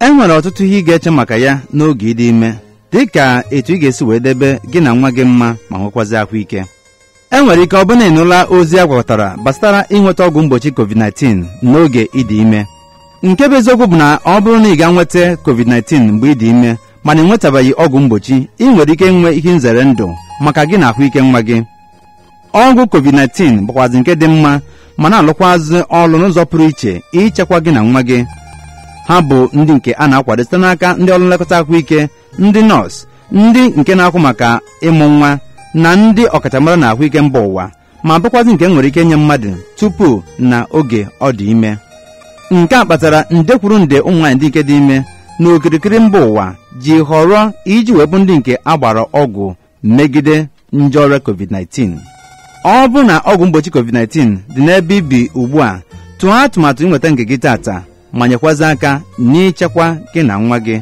e nwere ọtụtụ ihe ị ga-eche maka ya n'oge ịdị ime dị ka etu ị ga-esi wee debe gị na nwa gị mma ma nwekwazi ahụike. ike e nwere ike ọbụna ịnụla ozi a gwakọtara gbasara ịnweta ọgwụ mgbochi covid-19 n'oge ịdị ime nke bụ eziokwu bụ na ọ bụrụ na ị ga nweta covid-19 mgbe ịdị ime mana nwetabeghị ọgwụ mgbochi ị nwere ike nwe ihe nzere ndụ maka gị na ahụike nwa gị ọgwụ covid-19 bụkwazị nke dị mma ma na-alụkwazị ọrụ n'ụzọ pụrụ iche ịchekwa gị na nwa gị ha bụ ndị nke a na-akwado site n'aka ndị ọrụ nlekọta ahụike ndị nọọsụ ndị nke na-akwụ maka ịmụ nwa na ndị ọkachamara na ahụike mba ụwa ma bụkwazị nke nwere ike nye mmadụ tupu na oge ọ dị ime nke a kpatara nde kwuru nde ụmụ nwaanyị ndị nke dị ime na okirikiri mba ụwa ji họrọ iji webụ ndị nke agbara ọgwụ megide nje ọrịa covid-19 ọ bụ na ọgwụ mgbochi covid-19 dị n'ebe ibi ugbu a tụọ atụmatụ ịnweta nke gị tata manyekwa aka n'ịchekwa gị na nwa gị